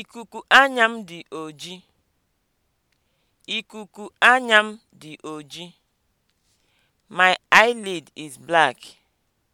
Ikuku anya m dị oji. Ikuku oji. My eyelid is black.